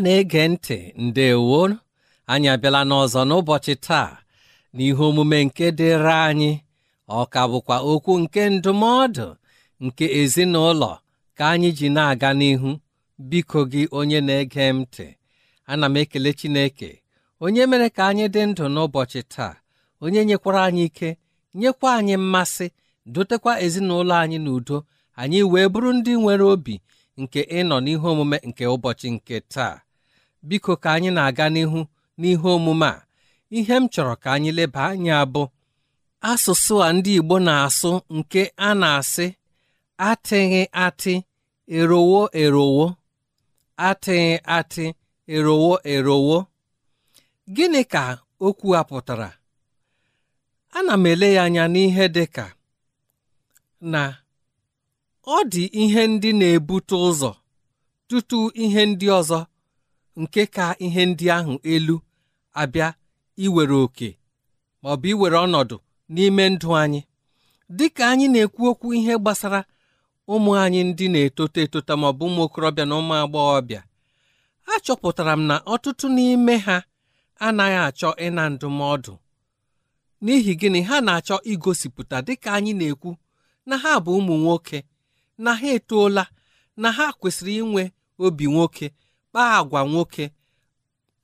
ọma na-ege ntị ndewo anyị abịala n'ọzọ n'ụbọchị taa n'ihe omume nke dịrị anyị ọka bụkwa okwu nke ndụmọdụ nke ezinụlọ ka anyị ji na-aga n'ihu biko gị onye na-ege m ntị ana m ekele Chineke onye mere ka anyị dị ndụ n'ụbọchị taa onye nyekwara anyị ike nyekwa anyị mmasị dotekwa ezinụlọ anyị n'udo anyị wee bụrụ ndị nwere obi nke ịnọ n'ihe omume nke ụbọchị nke taa biko ka anyị na-aga n'ihu n'ihe omume a ihe m chọrọ ka anyị leba anya abụ. asụsụ a ndị Igbo na-asụ nke a na-asị atịghị atị erowo erowo atịghị atị erowo erowo gịnị ka okwu a pụtara ana m ele ya anya n'ihe dị ka na ọ dị ihe ndị na-ebute ụzọ tutu ihe ndị ọzọ nke ka ihe ndị ahụ elu abịa iwere oke ma ọ bụ iwere ọnọdụ n'ime ndụ anyị dịka anyị na-ekwu okwu ihe gbasara ụmụ anyị ndị na etota etota ma ọ bụ ụmụ okorobịa na ụmụ agbọghọbịa achọpụtara m na ọtụtụ n'ime ha anaghị achọ ịna ndụmọdụ n'ihi gịnị ha na-achọ igosipụta dịka anyị na-ekwu na ha bụ ụmụ nwoke na ha etoola na ha kwesịrị inwe obi nwoke kpaa agwa nwoke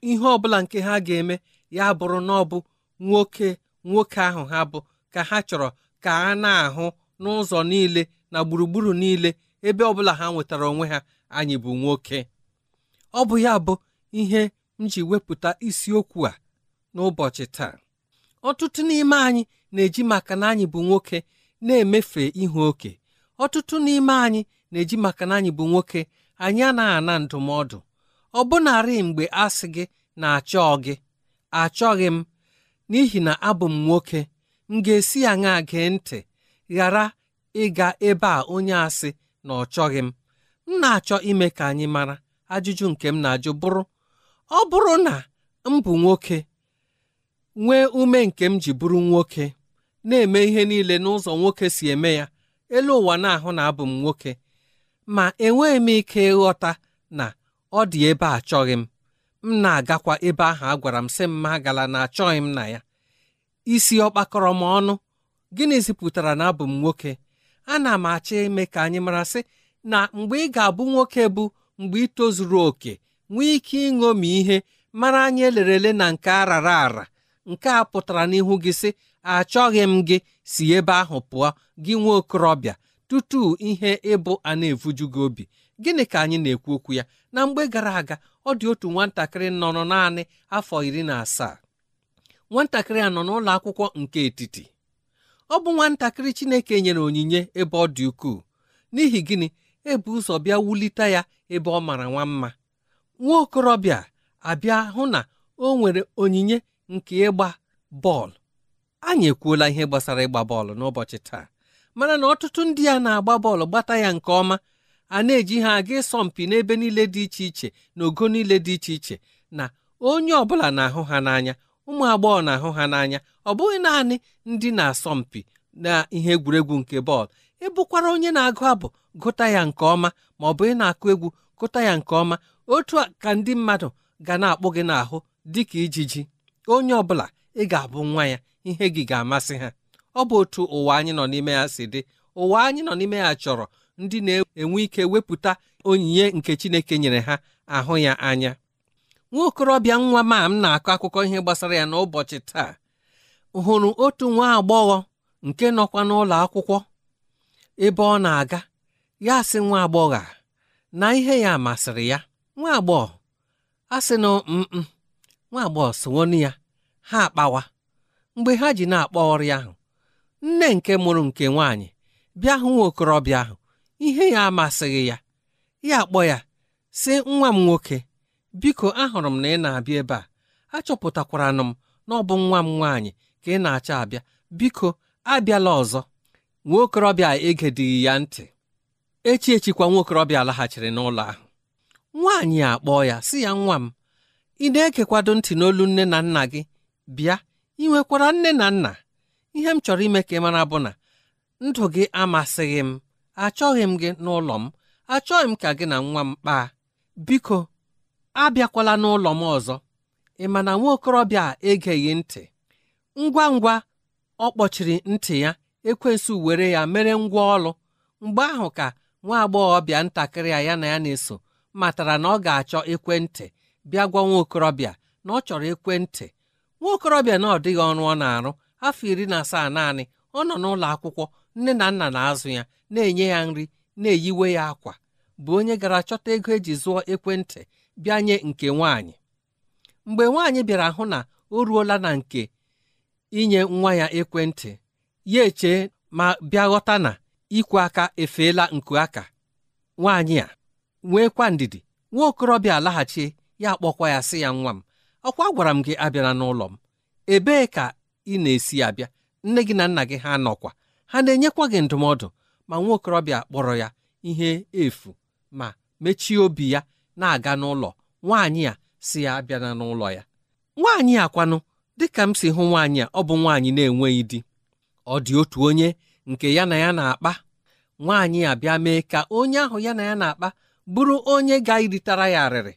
ihe ọbụla nke ha ga-eme ya bụrụ na ọ bụ nwoke nwoke ahụ ha bụ ka ha chọrọ ka a na-ahụ n'ụzọ niile na gburugburu niile ebe ọbụla ha nwetara onwe ha anyị bụ nwoke ọ bụ ya bụ ihe m ji wepụta isiokwu a n'ụbọchị taa ọtụtụ n'ime anyị na-eji maka na anyị bụ nwoke na-emefe ihu oke ọtụtụ n'ime anyị na-eji maka na anyị bụ nwoke anyị anaghị ana ndụmọdụ ọbụnarị mgbe asị gị na-achọ gị achọghị m n'ihi na abụ m nwoke m ga-esi ya ṅa gee ntị ghara ịga ebe a onye asị na ọ chọghị m m na-achọ ime ka anyị mara ajụjụ nke m na-ajụ bụrụ ọ bụrụ na m bụ nwoke nwee ume nke m ji bụrụ nwoke na-eme ihe niile n'ụzọ nwoke si eme ya elu ụwa na-ahụ na abụ m nwoke ma enweghị m ike ịghọta na ọ dị ebe a achọghị m m na-agakwa ebe ahụ a gwara m sị m agala na achọghị m na ya isi ọkpakọrọ m ọnụ gịnị pụtara na abụ m nwoke ana m achọ ime ka anyị mara sị na mgbe ị ga-abụ nwoke bụ mgbe ị tozuru oke nwee ike ịṅomi ihe mara anyị elerele na nke arara ara nke a pụtara n'ihu gị sị achọghị m gị si ebe ahụ pụọ gị nwa okorobịa tutu ihe ịbụ a na-evuju gị obi gịnị ka anyị na-ekwu okwu ya na mgbe gara aga ọ dị otu nwatakịrị nọrọ naanị afọ iri na asaa nwatakịrị a nọ n'ụlọ akwụkwọ nke etiti ọ bụ nwatakịrị Chineke nyere onyinye ebe ọ dị ukwuu n'ihi gịnị ebu ụzọ bịa wulite ya ebe ọ mara nwa mma nwa okorobịa abịa hụ na o nwere onyinye nke ịgba bọọlụ anyị ekwuola ihe gbasara ịgba bọọlụ n'ụbọchị taa mana na ọtụtụ ndị a na-agba bọọlụ gbata ya nke ọma a na-eji ha aga mpi n'ebe niile dị iche iche na ogo niile dị iche iche na onye ọ bụla na-ahụ ha n'anya ụmụ agbọghọ na-ahụ ha n'anya ọ bụghị naanị ndị na asọ mpi na ihe egwuregwu nke bọọlụ ịbụkwara e onye na-agụ abụ gụta ya nke ọma ma ọ bụ ị na-akụ egwu gụta ya nke ọma otu ka ndị mmadụ ga na-akpụ gị n'ahụ dị ka ijiji onye ọbụla ị ga-abụ nwa ya ihe gị ga-amasị ha ọ bụ otu ụwa anyị nọ n'ime ya si dị ụwa anyị nọ n'ime ya chọrọ ndị na-enwe ike wepụta onyinye nke Chineke nyere ha ahụ ya anya nwa okorobịa nwa ma m na-akọ akụkọ ihe gbasara ya n'ụbọchị taa hụrụ otu nwa agbọghọ nke nọkwa n'ụlọ akwụkwọ ebe ọ na-aga ya sị nwa agbọghọ na ihe ya masịrị ya nwa agbọghọ a sị na nwa agbọghọ sowonu ya ha akpawa mgbe ha ji na-akpọ ọrịa ahụ nne nke mụrụ nke nwaanyị bịa hụ nwa okorobịa ahụ ihe ya amasịghị ya ya akpọ ya sị nwa m nwoke biko ahụrụ m na ị na-abịa ebe a achọpụtakwara m na ọ bụ nwa m nwaanyị ka ị na acha abịa biko abịala ọzọ nwokorobịa okorobịa egedighị ya ntị echi echikwa nwa laghachiri n'ụlọ ahụ nwaanyị akpọọ ya sị ya nwa m ị na-ekekwado ntị n'olu nne na nna gị bịa ị nwekwara nne na nna ihe m chọrọ ime ka ị mara bụ na ndụ gị amasịghị m achọghị m gị n'ụlọ m achọghị m ka gị na nwa m kpaa biko abịakwala n'ụlọ m ọzọ ị ma na nwa okorobịa a egeghị ntị ngwa ngwa ọ kpọchiri ntị ya ekwensu were ya mere ngwa ọlụ mgbe ahụ ka nwa agbọghọbịa ntakịrị ya ya na ya na-eso matara na ọ ga-achọ ekwentị bịa gwa nwa okorobịa na ọ chọrọ ekwentị nwa okorobịa na ọ dịghị ọrụ ọ na-arụ afọ iri na asaa naanị ọ nọ n'ụlọ akwụkwọ nne na nna na-azụ ya na-enye ya nri na-eyiwe ya akwa bụ onye gara chọta ego eji zụọ ekwentị bịa nye nke nwaanyị mgbe nwaanyị bịara hụ na o ruola na nke inye nwa ya ekwentị ya eche ma bịa ghọta na ikwe aka efeela nku aka nwaanyị a nweekwa ndidi nwa okorobịa alaghachi ya akpọkwa ya sị ya nwa m ọkwa gwara m gị abịala n'ụlọ m ebee ka ị na-esi abịa nne gị na nna gị ha nọkwa ha na-enyekwa gị ndụmọdụ ma nwa okorobịa kpọrọ ya ihe efu ma mechie obi ya na-aga n'ụlọ nwaanyị a si ya abịana n'ụlọ ya nwaanyị a dịka m si hụ nwaanyị a ọ bụ nwaanyị na-enweghị di ọ dị otu onye nke ya na ya na-akpa nwaanyị abịa mee ka onye ahụ ya na ya na-akpa bụrụ onye ga-iritara ya arịrị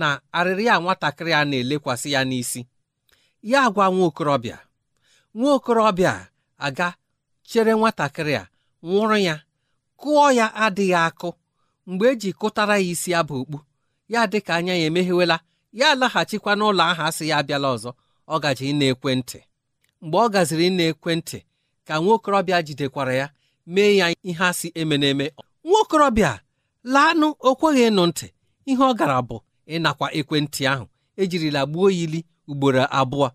na arịrị ya nwatakịrị a na-elekwasị ya n'isi ya gwa nwa okorobịa nwa okorobịa aga chere nwatakịrị a nwụrụ ya kụọ ya adịghị akụ mgbe eji kụtara ya isi abụ okpu ya dị ka anya ya emeghewela ya alaghachikwa n'ụlọ ahụ asị ya abịala ọzọ ọ gaji ịna ekwentị mgbe ọ gaziri ịna ekwentị ka nwaokorobịa jidekwara ya mee ya ihe asị eme n'eme nwaokorobịa laanụ o kweghị ịnụ ntị ihe ọ gara bụ ịnakwa ekwentị ahụ ejirila gbuo ili ugboro abụọ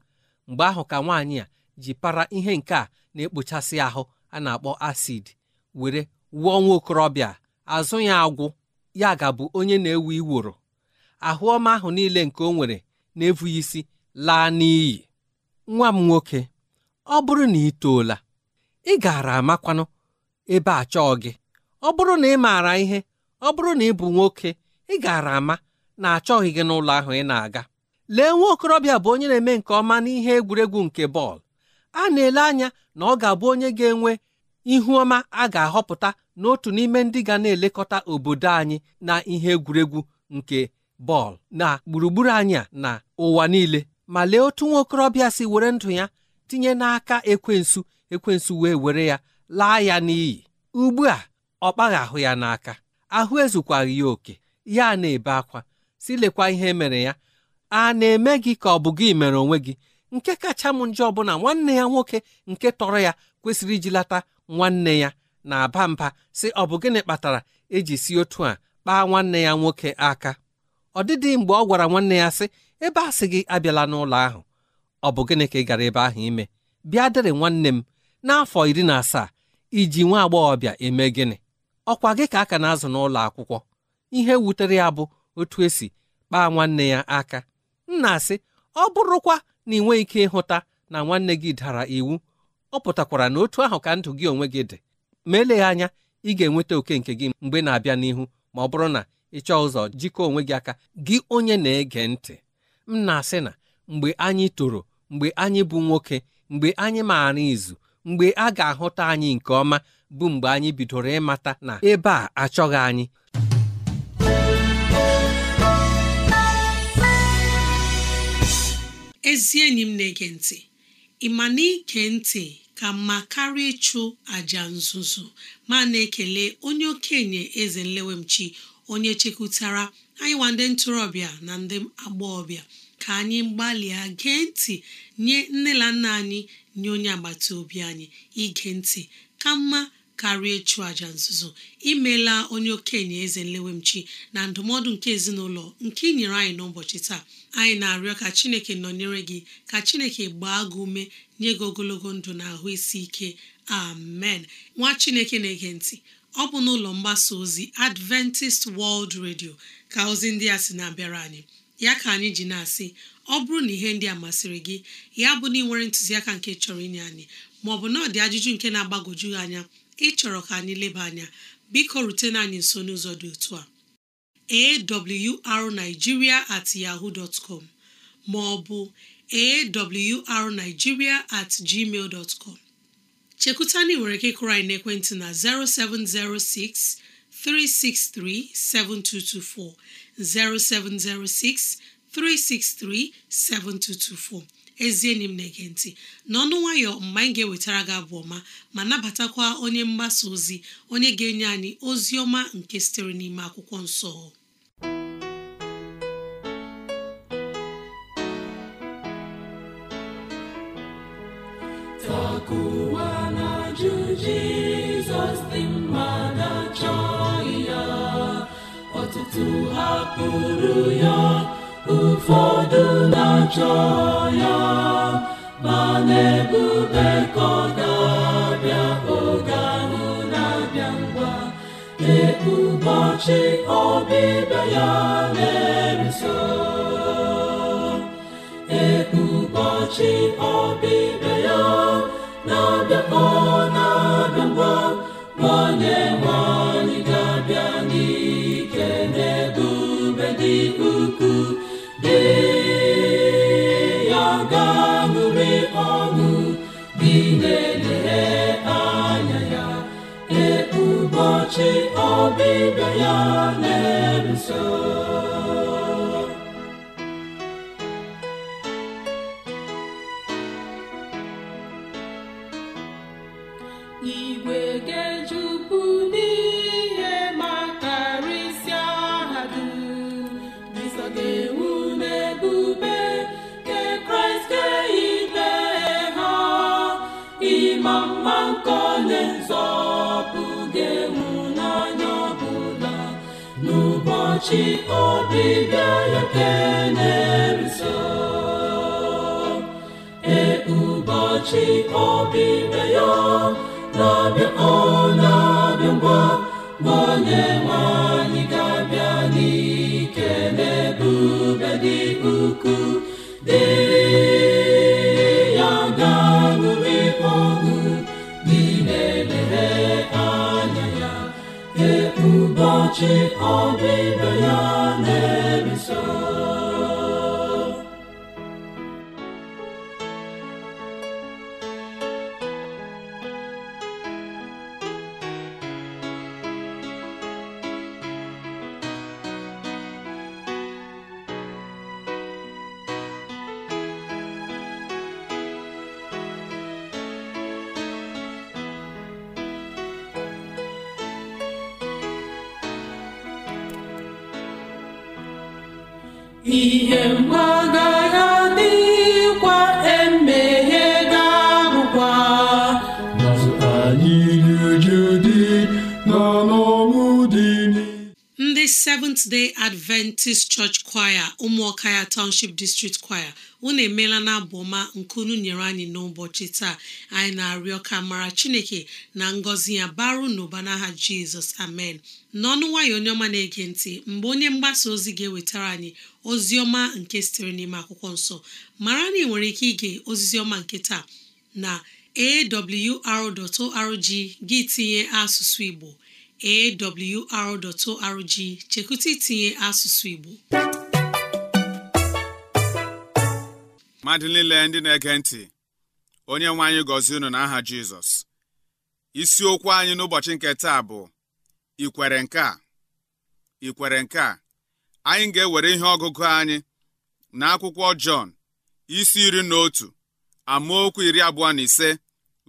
mgbe ahụ ka nwaanyị a ji para ihe nke a na-ekpochasị ahụ a na-akpọ acid were wụọ nwa okorobịa azụ ya agwụ ya gabụ onye na-ewu iworo ahụ ọma ahụ niile nke o nwere na-efughị isi laa n'iyi nwa m nwoke ọ bụrụ na ị toola ị gaara amakwanụ ebe a chọọ gị ọ bụrụ na ị maara ihe ọ bụrụ na ị bụ nwoke ị gaara ama na achọghị gị n'ụlọ ahụ ị na-aga lee nwa okorobịa bụ onye na-eme nke ọma n'ihe egwuregwu nke bọọlụ a na-ele anya na ọ ga-abụ onye ga-enwe ihu ọma a ga-ahọpụta n'otu n'ime ndị ga na-elekọta obodo anyị na ihe egwuregwu nke bọọlụ na gburugburu anyị na ụwa niile ma lee otu nwa okorobịa si were ndụ ya tinye n'aka ekwensu ekwensu wee were ya laa ya n'iyi ugbu a ọ kpaghị ahụ ya n'aka ahụ ezukwaghị ya oke ya na-ebe akwa lekwa ihe e mere ya a na-eme gị ka ọ bụ gị mere onwe gị nke kacha m njọ bụ na nwanne ya nwoke nke tọrọ ya kwesịrị iji lata nwanne ya na-aba mba sị ọ bụ gịnị kpatara eji si otu a kpaa nwanne ya nwoke aka ọ dịdị mgbe ọ gwara nwanne ya sị ebe a sị gị abịala n'ụlọ ahụ ọ bụ gịnị ka ị gara ebe ahụ ime bịa dịrị nwanne m n'afọ iri na asaa iji nwa agbọghọbịa eme gịnị ọkwa gị ka aka na-azụ n'ụlọ akwụkwọ ihe wutere ya bụ otu esi kpaa nwanne ya aka m na-asị ọ bụrụkwa na ị ike ịhụta na nwanne gị dara iwu ọ pụtakwara na otu ahụ ka ndụ gị onwe gị dị ma eleghị anya ị ga-enweta oke nke gị mgbe na-abịa n'ihu ma ọ bụrụ na ị chọọ ụzọ jikọọ onwe gị aka gị onye na-ege ntị m na-asị na mgbe anyị toro mgbe anyị bụ nwoke mgbe anyị maara izu mgbe a ga-ahụta anyị nke ọma bụ mgbe anyị bidoro ịmata na ebe a achọghị anyị ezi enyi m na-ege ntị ị ma na ike ntị ka mma karịa ịchụ àjà nzuzo ma na-ekele onye okenye eze nlewemchi onye chekwutara anyị nwa ndị ntorobịa na ndị agbọghọbịa ka anyị gbalịa gee ntị nye nne na nna anyị nye onye agbata obi anyị ige ntị ka mma karịa ịchụ aja nzuzo imeela onye okenye eze nlewemchi na ndụmọdụ nke ezinụlọ nke inyere nyere anyị n'ụbọchị taa anyị na-arịọ ka chineke nọnyere gị ka chineke gbaa gị ume nye gị ogologo ndụ na ahụ isi ike amen nwa chineke na-ege ntị ọ bụ n'ụlọ mgbasa ozi adventist world radio ka ozi ndị a sị na-abịara anyị ya ka anyị ji na-asị ọ bụrụ na ihe ndị a masịrị gị ya bụ na ị nwere ntụziaka nke chọrọ inye anyị maọbụ na ọ dị ajụjụ nke na-agbagwoju anya ịchọrọ ka anyị leba anya biko rutena anyị nso n'ụzọ dị otu a awrnigeria at ma ọ bụ awrnigeria@gmail.com. at gmail chekwuta na ị nwere ike kụrụ anyị na 0706 363 7224 0706 363 7224 ezi enyi m na-ege ntị n'ọnụ nwayọ mgbe anyị ga-ewetara gị abụ ọma ma nabatakwa onye mgbasa ozi onye ga-enye anyị ozi ọma nke sitere n'ime akwụkwọ nsọ mma na-achọ ya ọtụtụ ya ajọ ya ma na-ebube ka ga-abịa oge ahụ na-abịa ngwa ọbịbịa ya ọbịbịa ya na-abịa ọbịbịa ya na-eso ụbọchị ọbịbịa ya keneruso E ụbọchị ọbịbịa ya chịkọba ibe ya ihe mgbaga ya dịkwa emeghe ga-abụkwa anyị dị na ndị Seventh Day Adventist Church Choir ụmụọka ya Township District Choir unu emeela na abụ ọma nke unu nyere anyị n'ụbọchị taa anyị na-arịọ ka mara chineke na ngọzi ya baru n'ụba n'aha jizọs amen n'ọnụ nwayọ onye ọma na-ege ntị mgbe onye mgbasa ozi ga-ewetara anyị ozi ọma nke sitere n'ime akwụkwọ nsọ mara na ị nwere ike ige oziziọma ọma nke taa na awr.org gị tinye asụsụ igbo awr.org chekwụta itinye asụsụ igbo mmadụ niile ndị na-ege ntị onye nwe anyị gọzie unu n'aha Jizọs isiokwu anyị n'ụbọchị nke taa bụ ikwere nke a ikwere nke a anyị ga-ewere ihe ọgụgụ anyị na akwụkwọ Jọn isi iri na otu amaokwu iri abụọ na ise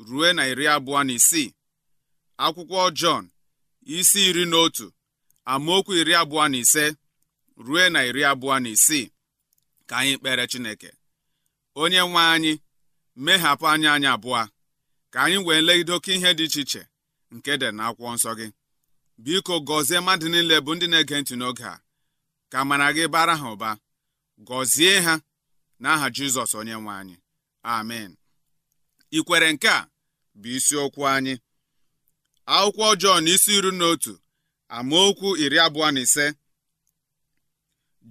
ruo na iri abụọ na isii akwụkwọ Jọn isi iri na otu amaokwu iri abụọ na ise ruo na iri abụọ na isii ka anyị kpere Chineke onye nwe anyị mehapụ anya anyị abụọ ka anyị wee legide oke ihe dị iche iche nke dị na akwụkwọ nsọ gị biko gọzie mmadụ niile bụ ndị na-ege ntị n'oge a ka mara gị bara ha ụba gọzie ha n'aha Jizọs onye nwe anyị amen ikwere nke a bụ isiokwu anyị akwụkwọ Jọn isi iri na otu amaokwu iri abụọ na ise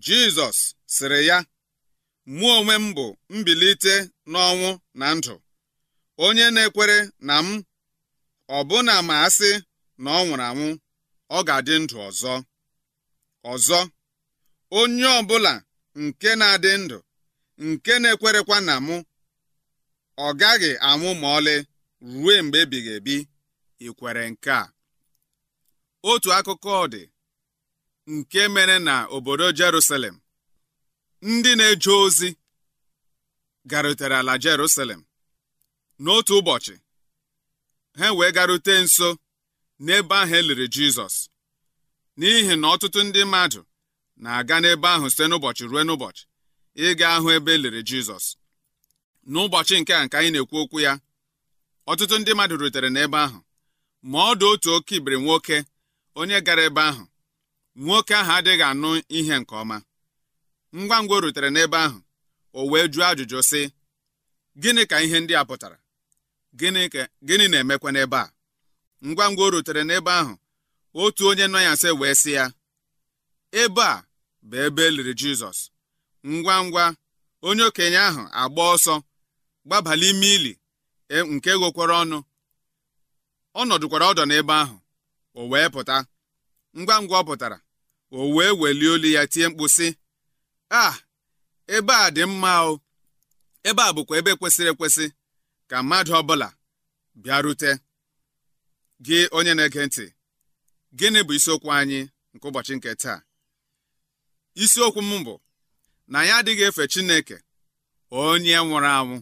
Jizọs sịrị ya mụ onwe m bụ mbilite n'ọnwụ na ndụ onye na-ekwere na m ọbụna ma asị na ọ nwụrụ anwụ ọ ga-adị ndụ ọzọ ọzọ onye ọbụla nke na-adị ndụ nke na-ekwerekwa na mụ ọ gaghị anwụ ma ọlị ruo mgbe ebighị ebi ikwere nke a otu akụkọ dị nke mere na obodo Jerusalem ndị na-eje ozi garutere ala Jerusalem n'otu ụbọchị ha wee garute nso n'ebe ahụ e liri Jizọs n'ihi na ọtụtụ ndị mmadụ na-aga n'ebe ahụ site n'ụbọchị ruo n'ụbọchị ịga ahụ ebe eliri Jizọs n'ụbọchị nke a nke anyị na-ekwu okwu ya ọtụtụ ndị mmadụ rutere n'ebe ahụ ma ọ dị otu oke ibiri nwoke onye gara ebe ahụ nwoke ahụ adịghị anụ ihe nke ọma ngwa ngwa o rutere n'ebe ahụ o wee jụọ ajụjụ sị gịnị ka ihe ndị a pụtara gịnị na-emekwa n'ebe a ngwa ngwa o rutere n'ebe ahụ otu onye nọ ya nsị wee sị ya ebe a bụ ebe eliri Jizọs ngwa ngwa onye okenye ahụ agba ọsọ gbabala ime ili e, nke ghokwara ọnụ ọ nọdụkwara ọdọ n'ebe ahụ o wee pụta ngwa ngwa ọ pụtara o wee welie olu ya tie mkpu sị a ebe a dị mma o ebe a bụkwa ebe kwesịrị ekwesị ka mmadụ ọbụla bịarute gị onye na-ege ntị gịnị bụ isiokwu anyị nke ụbọchị nke taa isiokwu m bụ na anyị adịghị efe Chineke onye nwụrụ anwụ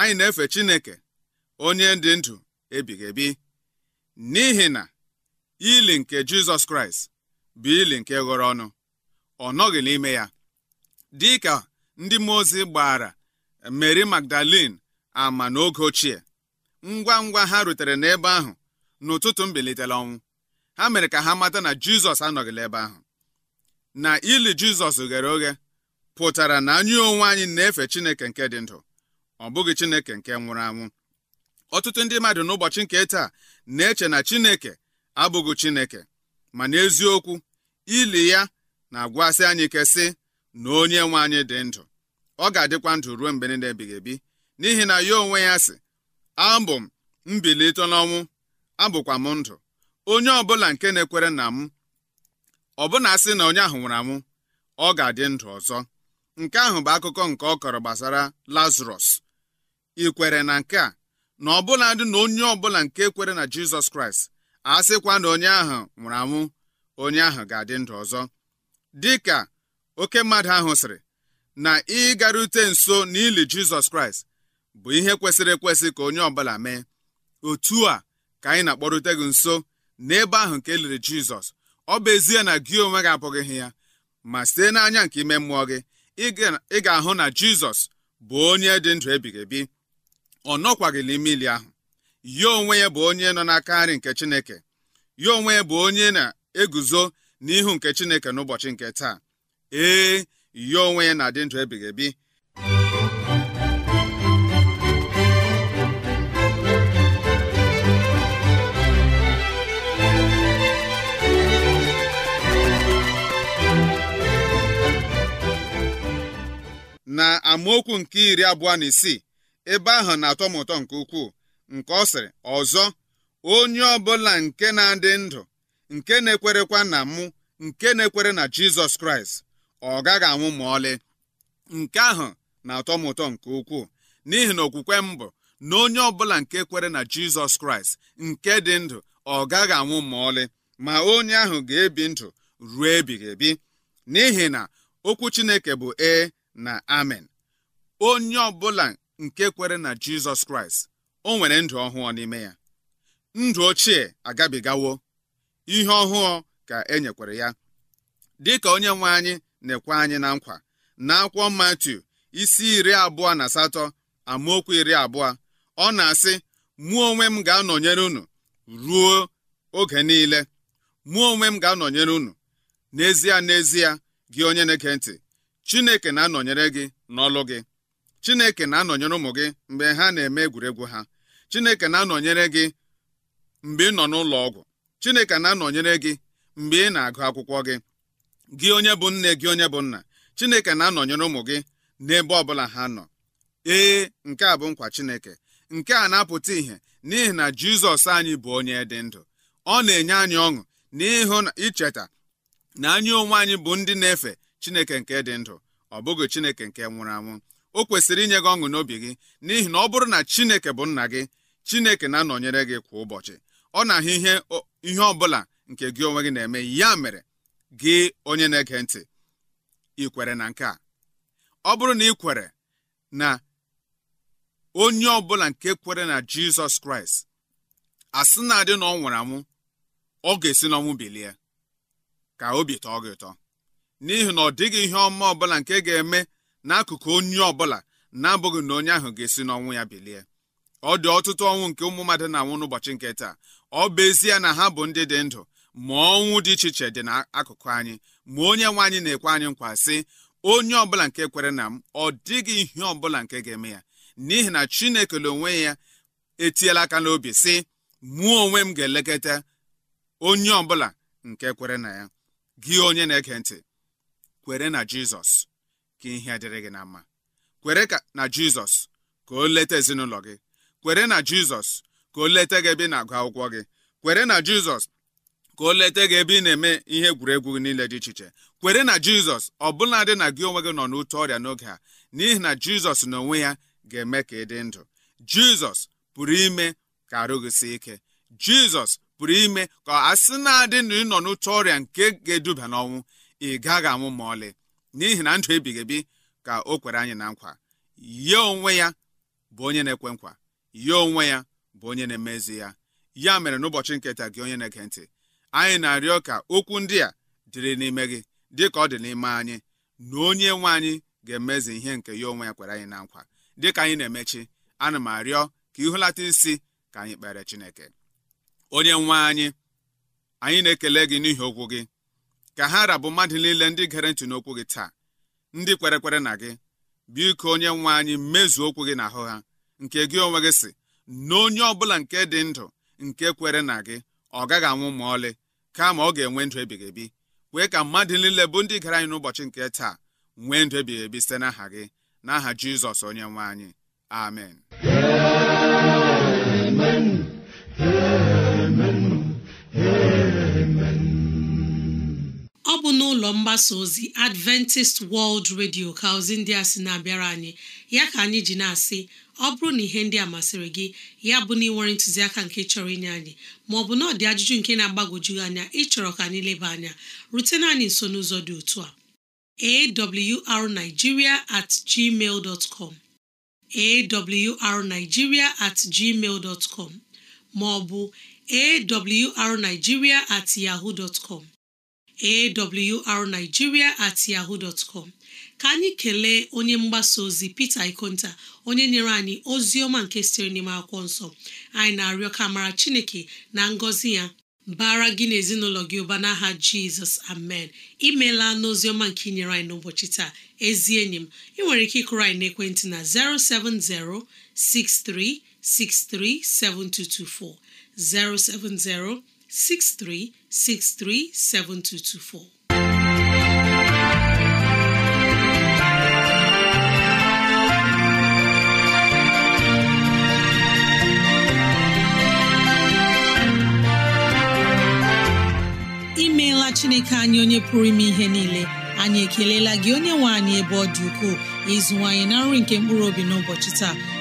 anyị na-efe Chineke onye dị ndụ ebighị ebi n'ihi na ili nke Jizọs Kraịst bụ ili nke ghọrọ ọnụ ọ nọghị n'ime ya Dịka ndị mmụọ ozi gbara Mary Magdalene ama n'oge ochie ngwa ngwa ha rutere n'ebe ahụ n'ụtụtụ mbilitere ọnwụ ha mere ka ha mata na Jizọs anọghịla ebe ahụ na ili Jizọs ghere oghe pụtara na anyị onwe anyị na-efe Chineke nke dị ndụ ọ bụghị Chineke nke nwụrụ anwụ ọtụtụ ndị mmadụ n'ụbọchị nke taa na-eche na Chineke abụghị Chineke ma n'eziokwu ili ya na-agwasị anyị ike sị na onye nwe anyị dị ndụ ọ ga-adịkwa ndụ ruo mgbe niile ebighị ebi n'ihi na ya onwe ya sị abụ m mbilite n'ọnwụ abụkwa m ndụ onye ọbụla nke na-ekwere na m ọbụna asị na onye ahụ nwụrụ anwụ ọ ga-adị ndụ ọzọ nke ahụ bụ akụkọ nke ọ kọrọ gbasara lazarus ị kwere na nke a na ọbụla dị na onye ọbụla nke kwere na jizọs kraịst a sịkwa na onye ahụ nwụrụ anwụ onye ahụ ga-adị ndụ ọzọ dịka oke mmadụ ahụ sịrị na ịgarute nso n'ili jizọs kraịst bụ ihe kwesịrị ekwesị ka onye ọbụla mee otu a ka anyị na-akpọrute gị nso n'ebe ahụ nke eliri jizọs ọ bụ ezie na gị onwe gị abụghị ya ma site n'anya nke ime mmụọ gị ị ga-ahụ na jizọs bụ onye dị ndụ ebighị ebi ọ nọkwaghịla ili ahụ ya onwe ya bụ onye nọ n'aka nri nke chineke ya onwe ya bụ onye na-eguzo n'ihu nke chineke n'ụbọchị nke taa ee ya onwe ya na-adị ndụ ebighị ebi na amaokwu nke iri abụọ na isii ebe ahụ na-atọ m ụtọ nke ukwuu nke ọ sịrị ọzọ onye ọbụla nke na-adị ndụ nke na-ekwerekwa na mụ nke na-ekwere na Jizọs Kraịst ọ gaghị anwụ ma ọlị nke ahụ na-atọ m ụtọ nke ukwuu n'ihi na okwukwe m bụ na onye ọbụla nke kwere na jizọs kraịst nke dị ndụ ọ gaghị anwụ ma ọlị ma onye ahụ ga-ebi ndụ ruo ebighị ebi n'ihi na okwu chineke bụ ee na amen onye ọbụla nke kwere na jizọs kraịst o nwere ndụ ọhụụ n'ime ya ndụ ochie agabigawo ihe ọhụụ ka e nyekwere ya dịka onye nwe anyị na-ekwe anyị na nkwa na akwụkwọ Matiu isi iri abụọ na asatọ amaokwu iri abụọ ọ na-asị mụ onwe m ga-anọnyere unu ruo oge niile mụ onwe m ga-anọnyere unu n'ezie n'ezie gị onye na-ege ntị Chineke na-anọnyere gị n'ọlụ gị Chineke na-anọnyere ụmụ gị mgbe ha na-eme egwuregwu ha Chineke na-anọnyere gị mgbe ị nọ n'ụlọ ọgwụ Chineke na-anọnyere gị mgbe ị na-agụ akwụkwọ gị gị onye bụ nne gị onye bụ nna chineke na-anọnyere ụmụ gị n'ebe ọbụla ha nọ ee nke a bụ nkwa chineke nke a na-apụta ìhè n'ihi na jizọs anyị bụ onye dị ndụ ọ na-enye anyị ọṅụ na na icheta na anyị onwe anyị bụ ndị na-efe chineke nke dị ndụ ọ bụghị chineke nke nwụrụ anwụ o kwesịrị inye gị ọṅụ n'obi gị n'ihi na ọ bụrụ na chineke bụ nna gị chineke na-anọnyere gị kwa ụbọchị ọ na-ahụ ihe ihe ọ bụla nke gị onwe gị na-eme ya mere gị onye na-ege ntị ị kwere na nke a ọ bụrụ na ị kwere na onye ọbụla nke kwere na jizọs kraịst asị na-adị na ọ nwụrụ anwụ ọ ga-esi n'ọnwụ bilie ka obi tọọ gị ụtọ n'ihi na ọ dịghị ihe ọma ọbụla nke ga-eme n'akụkụ onye ọbụla na-abụghị na onye ahụ ga-esi n'ọnwụ ya bilie ọ dị ọtụtụ ọnwụ nke ụmụ mmadụ na-anwụ n'ụbọchị nke taa ọ bụ ezie na ha bụ ndị dị ndụ ma ọnwụ dị iche iche dị n'akụkụ anyị ma onye nwe anyị na-ekwe anyị nkwa sị onye ọbụla nke kwere na m ọ dịghị ihe ọbụla nke ga-eme ya n'ihi na chineke na onwe ya etiela aka n'obi sị mụọ onwe m ga-elekọta onye ọbụla nke kwere na ya gị onye na-ege ntị kwere na jizọs ka ihe dịrị gị na mma kwere na jizọs ka o leta ezinụlọ gị kwere na jizọs ka o leta gị ebe na-agụ akwụkwọ gị kwere na jizọs ka o leta gị ebe ị na-eme ihe egwuregwu nile niile dị iche iche kwere na jizọs ọbụladị na gị onwe gị nọ n'ute ọrịa n'oge a n'ihi na jizọs n'onwe ya ga-eme ka ị dị ndụ jizọs pụrụ ime ka arụ gị si ike jizọs pụrụ ime ka a sị na-adị na ịnọ n'ụtọ ọrịa nke ga-eduba n'ọnwụ ị gaghị anwụ ma ọlị n'ihi na ndụ ebighị ebi ka o kwere anyị na nkwa ya onwe ya bụ onye na-ekwe nkwa ya onwe ya bụ onye na-emezi ya ya mere n'ụbọchị nketa gị onye na-ege ntị anyị na-arịọ ka okwu ndị a dịrị n'ime gị dịka ọ dị n'ime anyị na onye nwe anyị ga-emezi ihe nke ya onwe ya kwere anyị na nkwa dịka anyị na-emechi ana m arịọ ka ịhụlata isi ka anyị kpere Chineke onye nwe anyị anyị na-ekele gị n'ihi okwu gị ka ha rabụ mmadụ niile ndị gere ntị n'okwu gị taa ndị kwere kwere na gị biko onye nwe anyị mezuo okwu gị n'ahụ ha nke gị onwe gị si na onye ọ bụla nke dị ndụ nke kwere na gị ọ gaghị anwụ ma ọlị kama ọ ga-enwe ndụ ebighị ebi wee ka mmadụ niile bụ ndị gara anyị n'ụbọchị nke taa nwee ndụ ebighị ebi site n'aha gị n'aha jizọs onye nwe anyị amen amen n'ụlọ mgbasa ozi Adventist World Radio ka ozi ndị a sị na-abịara anyị ya ka anyị ji na-asị ọ bụrụ na ihe ndị a masịrị gị ya bụ na ịnwere ntụziaka nke chọrọ inye anyị maọbụ na ọ dị ajụjụ nke na-agbagwoju anya ịchọrọ ka anyị leba anya rutena anyị nso n'ụzọ dị otu a awrnigeria at gmail dot com awrnigeria at gmail dot com maọbụ awrnigeria at yahoo dot com awrnigeria at yahoo dot com ka anyị kelee onye mgbasa ozi Peter Ikonta onye nyere anyị ozi ọma nke sitere n'ime akwụkwọ nsọ anyị na-arịọ ka mara Chineke na ngọzi ya bara gị na ezinụlọ gị ụba n'aha jizọs amen imeela n'oziọma nke inyere nyere anyị n'ụbọchị taa ezi enyi m ị nwere ike ịkụrụ anyị naekwentị na 070 6363 7224 070 63637224. imeela chineke anyị onye pụrụ ime ihe niile anyị ekelela gị onye nwe anyị ebe ọ dị ukwuu ịzụwanyị na nri nke mkpụrụ obi n'ụbọchị taa